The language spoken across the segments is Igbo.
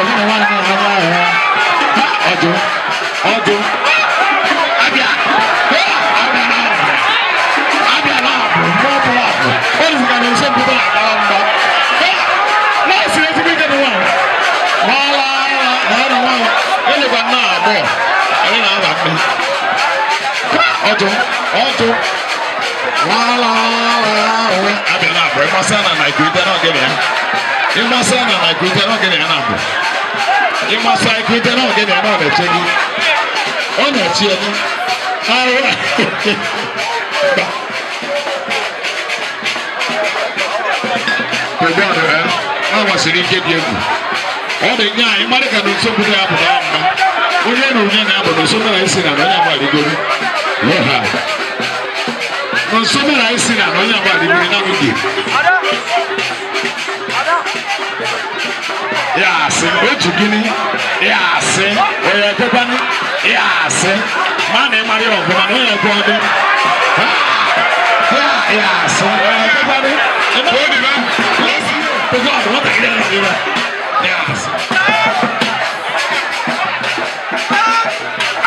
ẹ̀yìn wọn náà máa wá ẹ̀rọ ọdún ọdún. Abia Abia náà Abia náà bọ̀ mọ́ bọ̀ àbọ̀ ó lè fi kàdé ṣé gbogbo àgbàrá ń bọ̀. Náà sì lè fi mí kẹ́mi wọ̀ wọ́n wá wọ́n náà wọ́n ẹ̀lẹ́ gba náà bọ̀ ẹ̀yìn náà wà pẹ́. Ọdún ọdún wọ́n wá wọ́n Abia náà bọ̀ ẹ̀ mọ́ sẹ́nà Nàìjíríà náà gẹ̀mí ẹ̀. Imasa na na kwete na ogene ya na bụ. Imasa kwete na ogene ya na ọ na-eche gị. Ọ na-eche gị. Ara. Kedu ọdụ ya? Ọ gbasiri ike dị egwu. Ọ dị nye anyị mmadụ ka na nsogbu na-apụta mma. Onye na onye na-abụ na nsogbu na-esi na onye agba arịgoro. Lọha. Na nsogbu na-esi na onye agba arịgoro na-abụghị. yaase otu gini yaase oye tekwani yaase mana ịmara ya ọbụla na onye gwa ọdụ yaase oye tekwani odibe tụkwa ọdụ nwatakịrị na ọdịbe yaase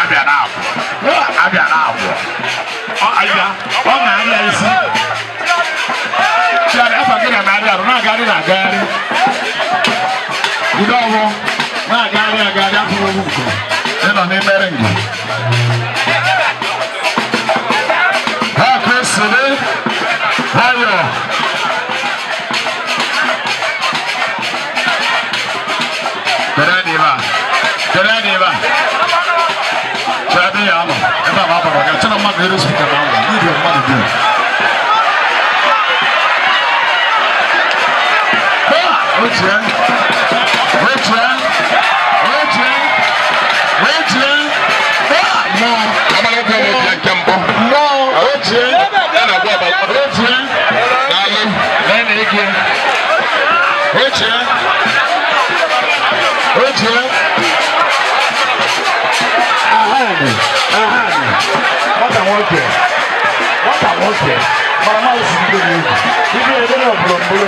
abịa na abụọ abịa na abụọ ọ abịa ọ na-arịa isi chiara afọ gị na na-arịa arụ na-agagharị na-agagharị ndị ọgbọ na-agagharị agagharị apụrụ ị na n'ime ringị Otie. Otie. Otie. Ahani. Ahani. Nwata nwoke. Nwata nwoke. Mara mmadụ si bido n'egwu. Ibi ebe na ọbụlọmbụlọ.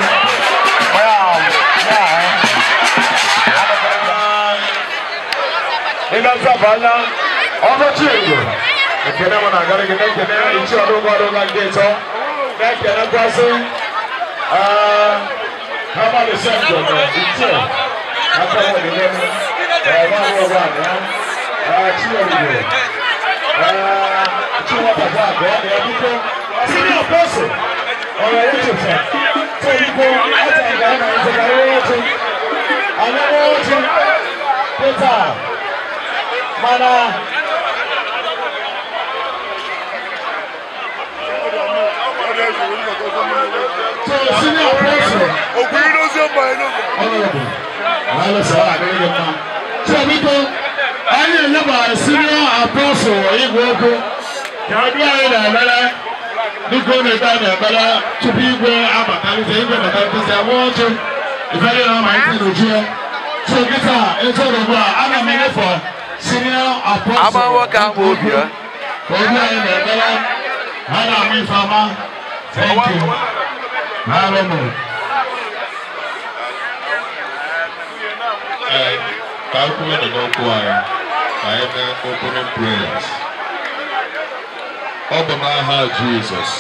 Ịgasabala ọkọchị egwu. Ekele m na-agara gị na-ekele ichi ọdụ ụgbọ ọdụ ụlọ ndị ịtọ. Na-ekele kwasị kábà lè ṣe àjọ̀dọ̀ ìjẹ́ àtàwọn ìlẹ́nu ẹ̀rọ àwọn ọ̀rọ̀ àná tí wọ́n lè rẹ̀ tí wọ́n bàbá àgbọ̀ ọ̀nà ẹ̀dún tó sínú àpọ́sù ọ̀rọ̀ yìí tó fẹ́ tó ń kó àtàgbà ọ̀nà ìjọba lọ́wọ́ tó àná lọ́wọ́ tó pété mana. Thank you senior apostle. Ògùn yìí ló ṣe ń bọ̀ inú mi. Honourable, àlọ́ sọ àbẹ̀rẹ̀ yẹn kan. Tí o bí kó, ayé ìlẹ́bà senior apostle wọ̀nyí gbogbo. Yàrá ayé nà ẹ̀mẹ́rẹ́, nígbó ní ìgbà nà ẹ̀mẹ́rẹ́, tupu igwe abakalite, igwe abakalite, ẹ̀wọ́ ọ̀tún, ìfẹ́lẹ́ náà máa ń tẹ̀ lójú ẹ̀. So gita, ètò òdòdó thank you. Hallelujah. Ka anyị, ka anyị mee Ọ bụ n'aha Jizọs.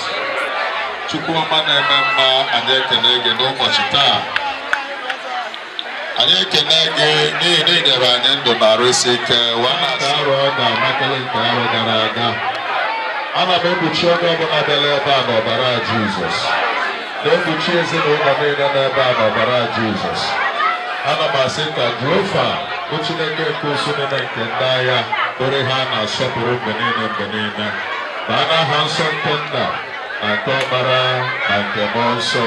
Chukwu ọma na-eme mma anyị ekele gị n'ụbọchị taa. Anyị ekele gị n'ihi na anyị ndụ na arụsị ike arụ nke gara aga. Ana m ekpuchi onye ọbụla bịara ebe a n'ọbara Jizọs. Don't be chasing women na n'ebe a n'ọbara Jizọs. Ana m asị ka Jehova bụ Chineke nke osimiri nke ndị agha bụrụ ha na-asọpụrụ mgbe niile mgbe niile. Baa n'aha nsọ nke nna na nke ọkpara na nke mmụọ nsọ.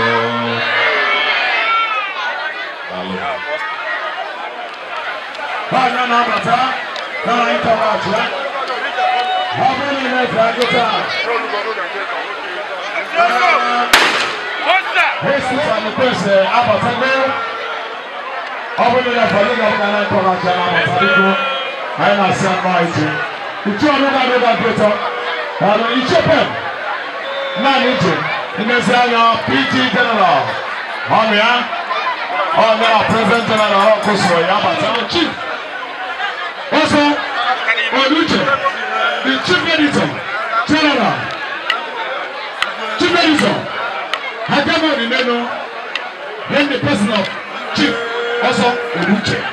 na-abata n'ala ịntanetị ya. Ọ bụrụ na Jesus and the priest Abatagbe ọbụrụ ya fọdụ na ọbụrụ na nkọ na-acha na Abatagbe anyị na-asị anụ anyị ji uchu ọnụ na-adị na dịtọ ọrụ ichepe naanị ije mmezi anya PG General ọnụ ya ọnụ ya President General ọkụsoro ya Abatagbe chief ọsọ Oluche the chief editor general chief editor. Hagama Onimeno in the person of Chief Oso Onuche. Yeah.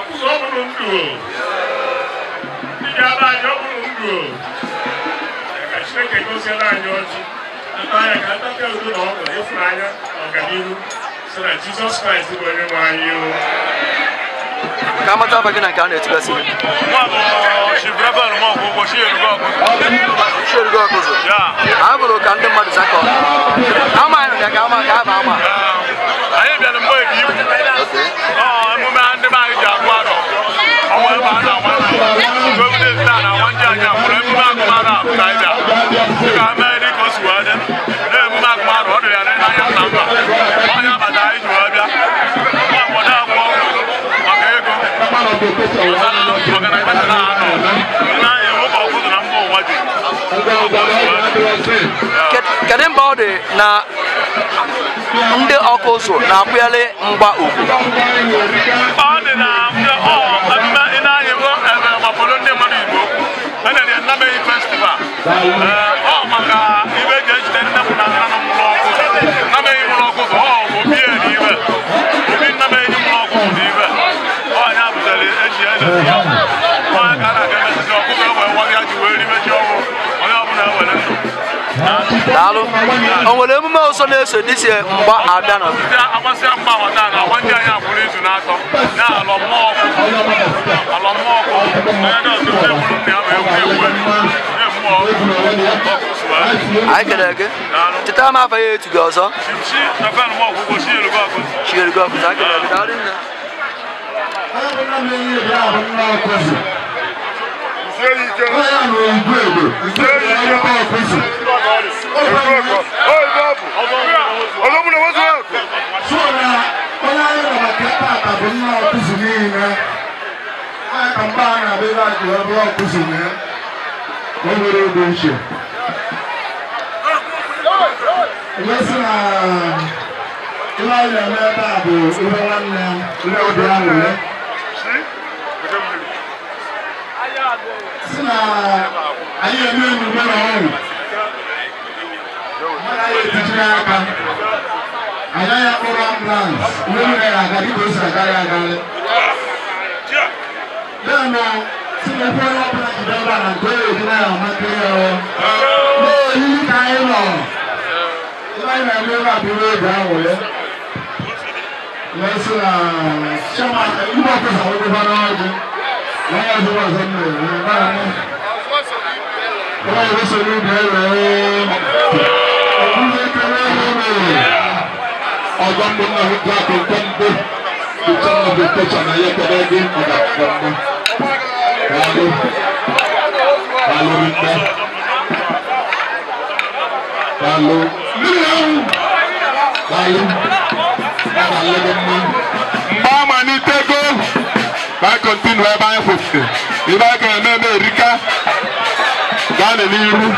ọkụzọ ọbụrụ ndụ ndị a anyị ọbụrụ ndụ ka chineke goziere anyị ọjị ata anya ka ntapịa udo na ọgụ ịfụrụ anya ọganihu si na jizọs kraịst bụ onye nwe anyị ka amata abaghị na nke a na-etibasi gị chierugo ọkụzụ a bụrụ ka ndị mmadụ zakọ amaghị ka ama ka a ma ama anyị bịara mgbe ebi ibu emume ndị ma ọwọ́ ẹ̀ máa ń àwọn àgbà gómìnà ìta na àwọn jẹ́ àjà fúnra ẹ̀mú máa kọ́ ara àbúrò ẹ̀dá ẹ̀ka mẹ́rin kọ́ sùn wá dẹ́ ní ẹ̀mú na mba ụwa ọ dị na ndị ọkụ ụzụ na-akwụgharị mgba ugwu na ọ eh, oh, maka ibe eji ejide nne m na nna m mụrụ ọgwụ nameghị ọgwụ bụ ibe bụ eji ya nwa aka na-aga mezizi ya ọgwụ e o nwere emume ọzọ na-eso na agbasịa na ndị izu na-atọ na anyị kelere gị chetara m afa ya etu gị ọzọ chielugo a jụrụ ebe nwere obi c h e esi na ihe anyị na-eme ebe a bụ ihe nwanne ihe obi aṅụrị si na anyị eme emume na ọṅụ anyị etichiri aka anyị anya kpọrọ ambulans ihe mere aga dịka o si agarị agarị ya na tí mo fẹ́ lábẹ́ ìjọba nàìjíríà ìdílé àwọn ọmọkiri ọ. mo yí ká ẹ lọ. láyé ẹgbẹ́ bá bí wọ́n gbà wọ̀ yẹ. lẹ́sìn à ṣẹ́mà ìgbà tó sọ̀rọ̀ tó bá náà jẹ. lọ́wọ́ tó wà sọ́nù rẹ̀ báyà ní. wọ́n yóò sọ ní ìbẹ̀rẹ̀ rẹ̀. ọ̀gbìn kẹrẹ́ rẹ̀. ọgbà mbọ̀nà ìgbà tó gbọ́ mbọ̀. ìtàn ọ̀gbìn tó sọ̀rọ̀ ayẹ́kọ̀ọ́ Kalu, Kalu Rita, Kalu, If I can Lodoma. Mama ni tego, ba continue America. Gane ni iru.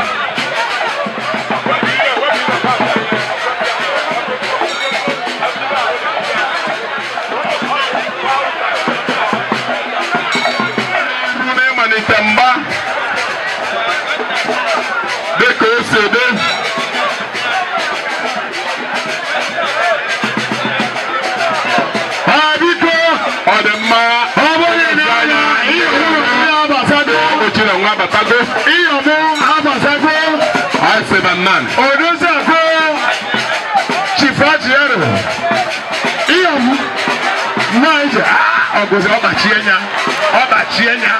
yẹ nya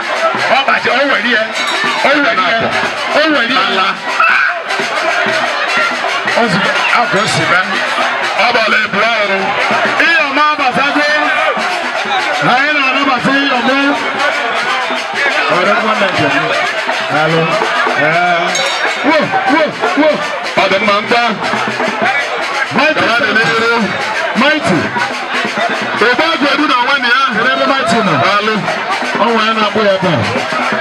ọba ti ọwọ ẹni yẹ ọwọ ẹni yẹ ọwọ ẹni yẹ la ọsùn àgọ sí bẹ ọba lè bùrọ ọrùn iyọ mọ abàtà gbé ayé nà ọdún bàtà iyọ mọ ọdún gọọmenti ọdún alo ẹ wo wo wo ọdún máa ń gbá mighty mighty ìgbà gbẹdúrà. ọnwa ano na-agbụ a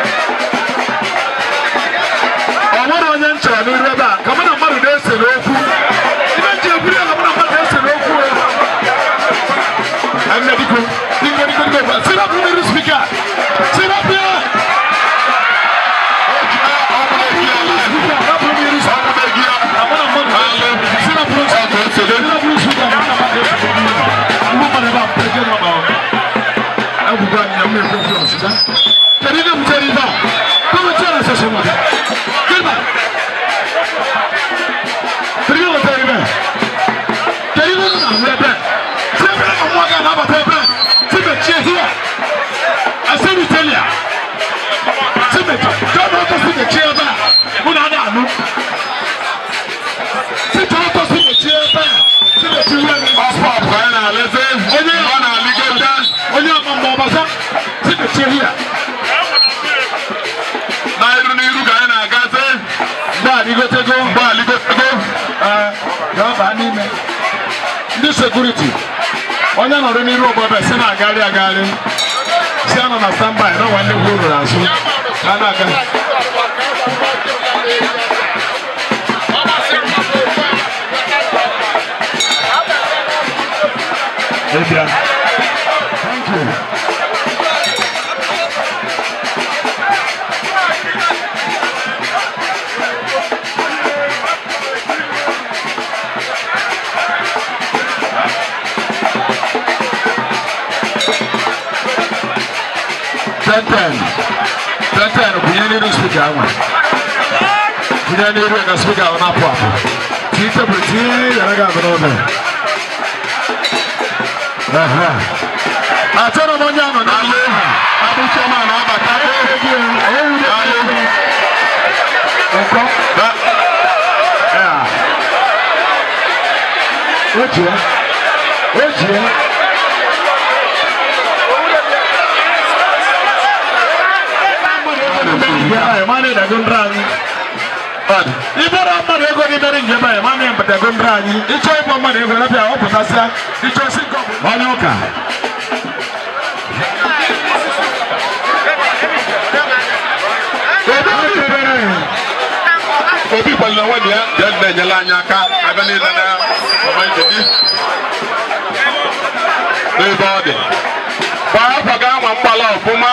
security onye nọrọ n'iru obodo si na agagharị agagharị si anọ na standby na nwanne gwu ruru azụ ka a na-aga Maybe I tantan tantan kunyaniru spika ama kunyaniru ga spika wani apụ apụ ti tebụl ti yara ga abụ n'ụlọ achọrọ m onye anọ n'ala ha abụcha ma na abata Ojie, ojie. jeba ya? mane dagun rangi bad ibara mane go ni dari jeba mane yang dagun rangi icho ipo mane go lapia o potasa icho sinko manyoka obi palina wani ya jadda nyala anya aka abali lana mama ibebi n'ebe ọ dị kwa afọ ga-anwa mgbala ọfụma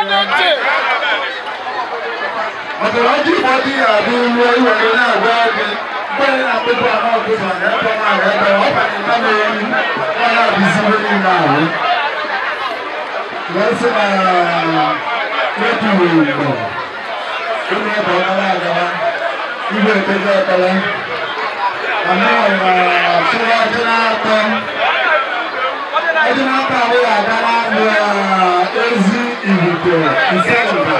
ọ̀tọ̀lọ́jì ìfọ̀dí àbí ìwé ìwọ̀dí náà gbọ́ bí bẹ́ẹ̀ náà gbogbo àwọn ọ̀gbọ̀n rẹ̀ tọ́ máa rẹ̀ bẹ̀ ọ̀pá ní ìbámu ẹni wọn náà bí sí lórí ìlà rẹ̀. Wọ́n sì máa lọ́tù ìgbọ̀ nínú ẹ̀bọ̀ aláàgbà ìgbẹ́ ìtẹ́jọ́ ọ̀tọ̀lọ́. Àmọ́ ọ̀nà àṣírí ọjọ́ náà tán. Ọjọ́ náà tán àwọn àgbà náà lọ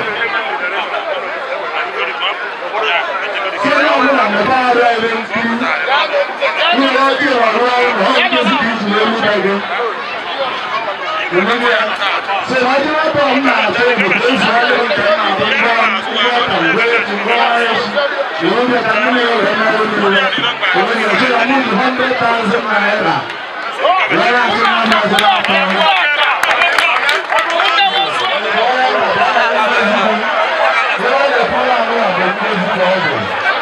bí ìrọ̀lọ́ ọ̀rọ̀ ọ̀gbìn sí kìí ṣe ewu dẹ́gbẹ́. Òmìnira ṣe ìwádìí wọn bọ̀ ń nà àti ìbùdó ìṣòro ìtẹ̀ náà tó ń bá ìwé àtàwé ti ń bá ẹ̀ṣin. Ìwé bí ẹ̀ka nílé ọ̀rẹ́ náà ló ń lò. Òmìnira ṣe ìwádìí one hundred thousand naira. Lọ́la ti máa ń bá ọ̀sẹ̀ àtàwọn.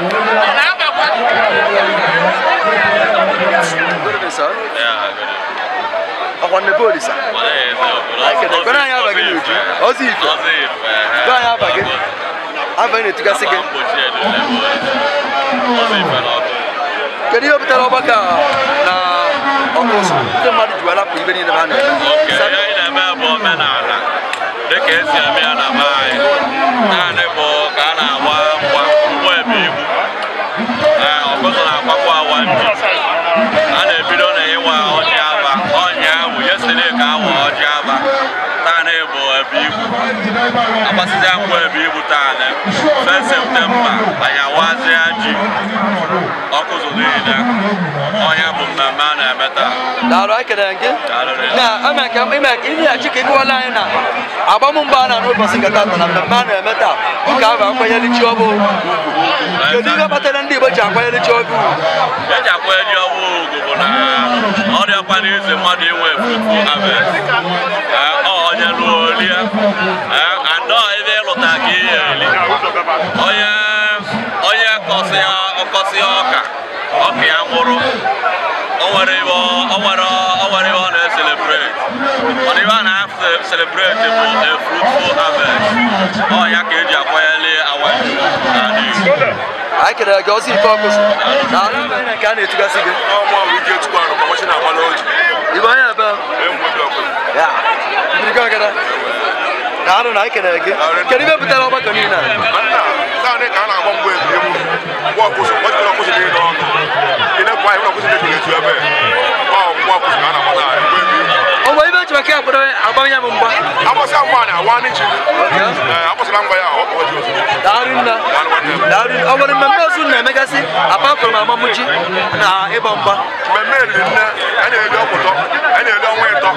Thank you. nakwa nne polisa ekene anyị abaghị n'uju ozi ife be eh, eh. anyị abaghị abaghị na-etugasị gị kedu ihe butere ọgbakọ na ọkụ ndị mmadụ ji welapụ ibe niile ha na-eme dịka esi eme ya na naanị bụ agbasizi akpọ ebe taa fes septemba anyị ji ọkụ zụrụ ọhịa bụ mmemme a na-eme taa daalụ ekele gị na eme na ime ka ịnyeghachi ka na agbamụmba a na-anụ ụbọchị nke na mmemme a na-eme taa ụka ahụ akwanyere chi ọbụ kedu ihe kpatara ndị Igbo ji akwanyere chi ọbụ eji akwanyere chi ọbụ ugwu bụ na ọrịa mmadụ inwe Olha, Onye lụọ olie anọ Olha, olha, gị Olha, olha onye kọsịa ọka ọka ya nwụrụ o nwere O ọ na-eselebreti ọ na iwe Olha na-eselebreti bụ a fruitful harvest ọ ya ka eji akwanyeli awa n'ala Igbo anyị kelere gị ọzọ ife ọkụzụ na alụ mere nke a na-etugasị gị ibe anya ebe a ikankana naanu na ekene gị kedu ibe butere ọgbakọ niile a bamenya mumba amosa mwana wani chini amosa lamba ya ojo darinna darin awon memme ozu na apart from amamuji na ịgba mgba memme rinne anyị na-ele ọpụtọ anyị na-ele ọnwa ịtọ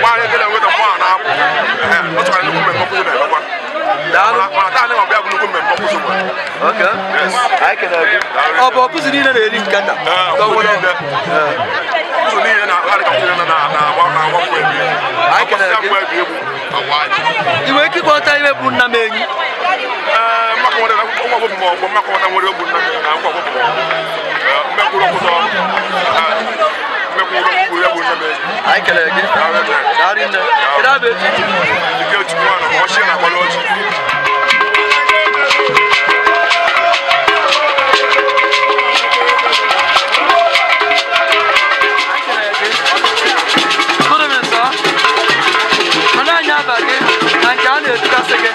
nwaanyị gị na-enweta mmanụ na-apụ ọ tụkwara nnukwu mmemme ọkpụkpụ na-emekwa ọ bụ ọkụzi niile na-eri nkata niile na-akpagharịkọtara na akpagharịkọtara na na ị nwere ike ịkọta bụ nna m enyi ee maka nwere akwụkwọ maka na ọchị na Anlage ein Jahr nicht, dass er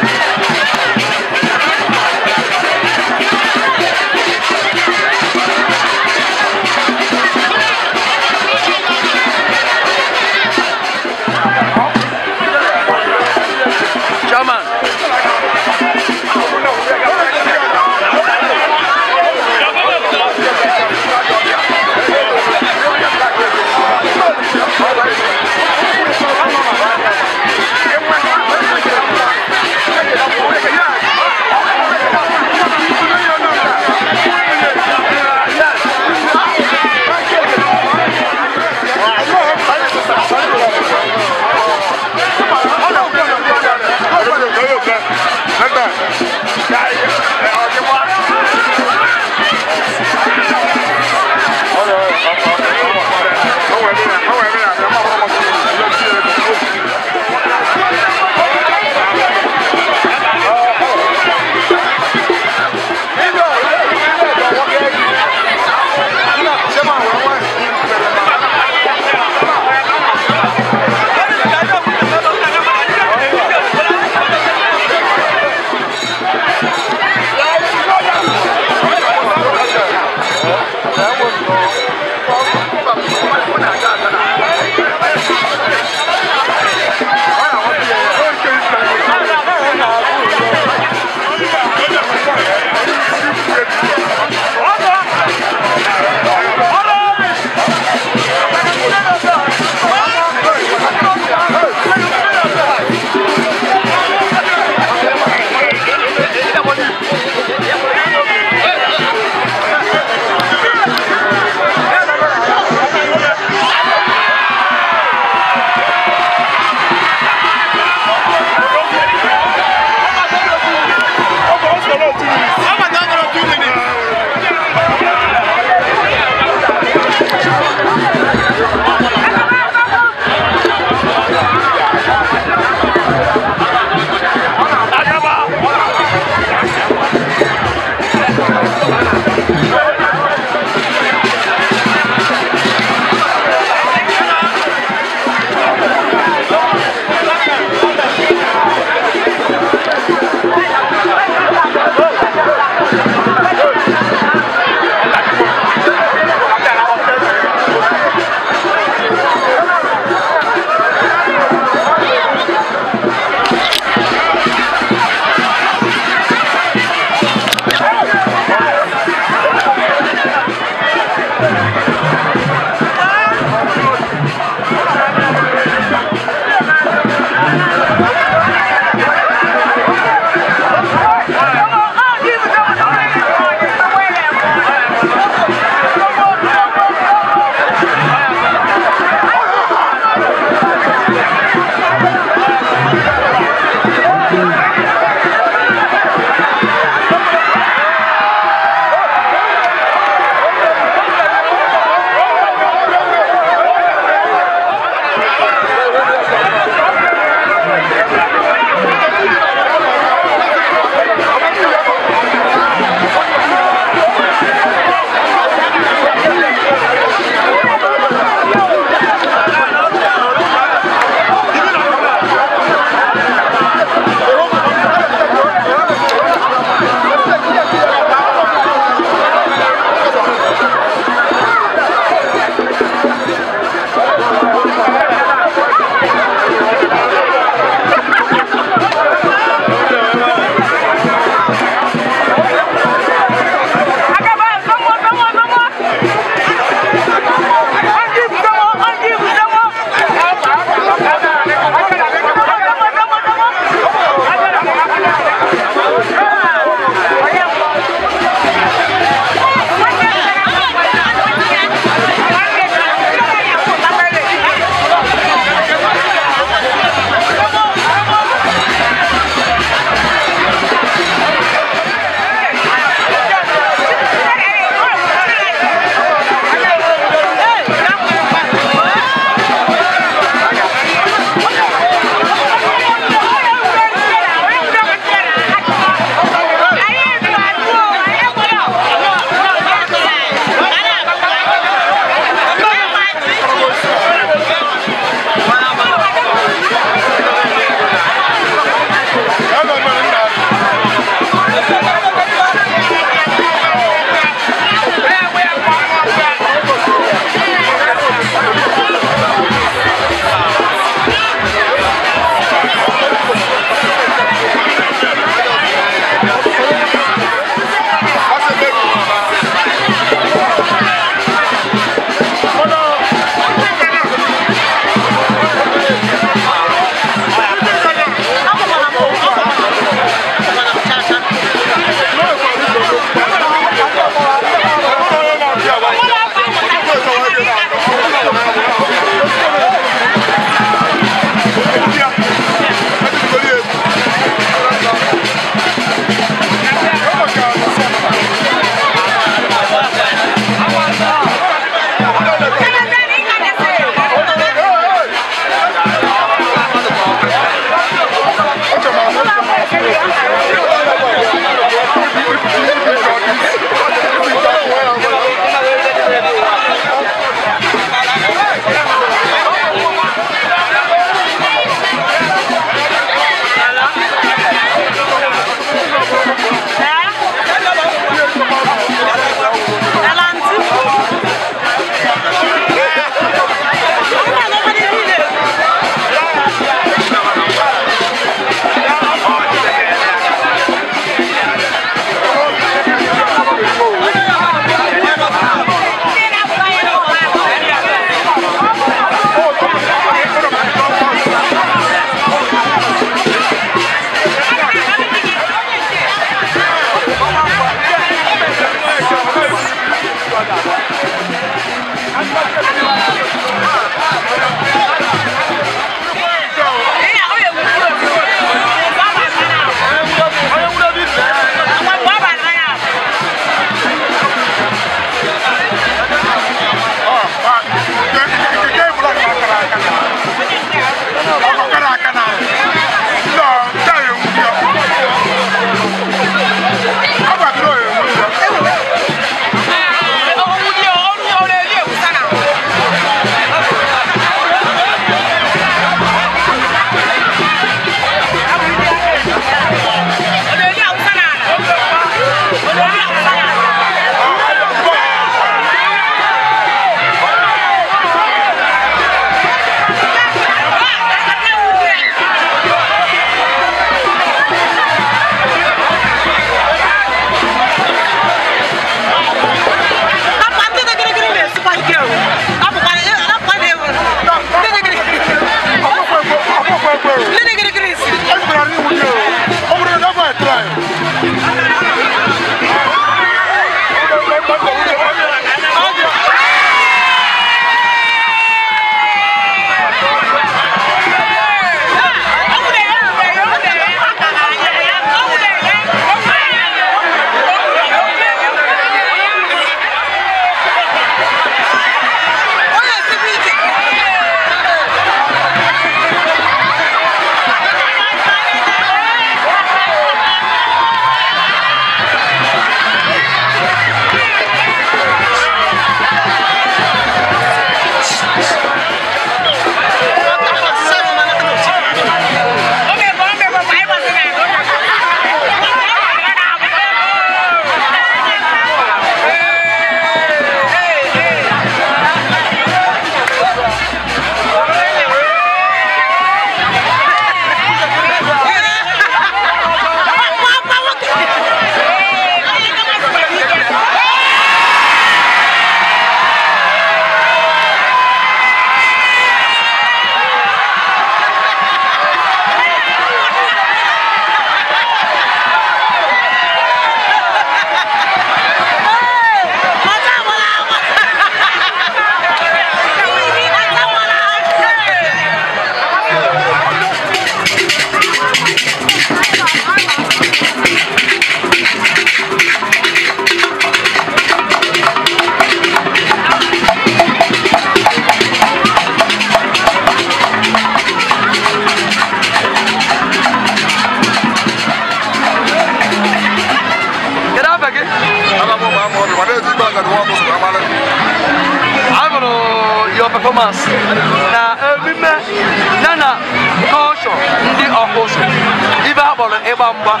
mbwa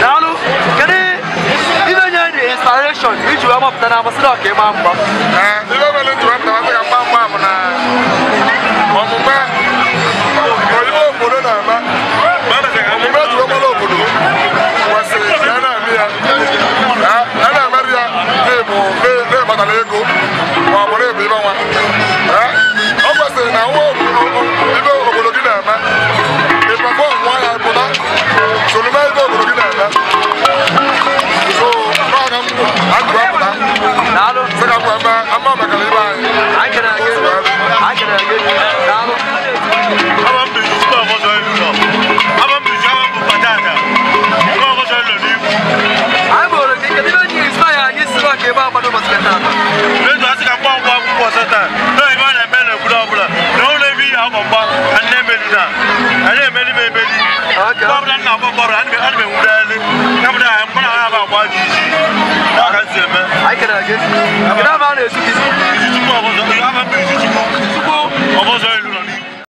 naanu kedu ibe nye the inspiration iji wee mọpụta na amasị na ọka ịma mgba ibe mere iji wee mọpụta na mgba mgba bụ na ọmụme oyibo obodo na-ama omume ejiri ọgbara obodo kwesịrị ka so no matter what you do so para mo agba pa nalo se ka ko ama ama ba kale ba i can i can i can do ba ọbụla nna agba gbara ana m na ebụda aha mkpụrụ ahụ aba agba dị isi n'aka si eme izi tupu ọbụzọ elu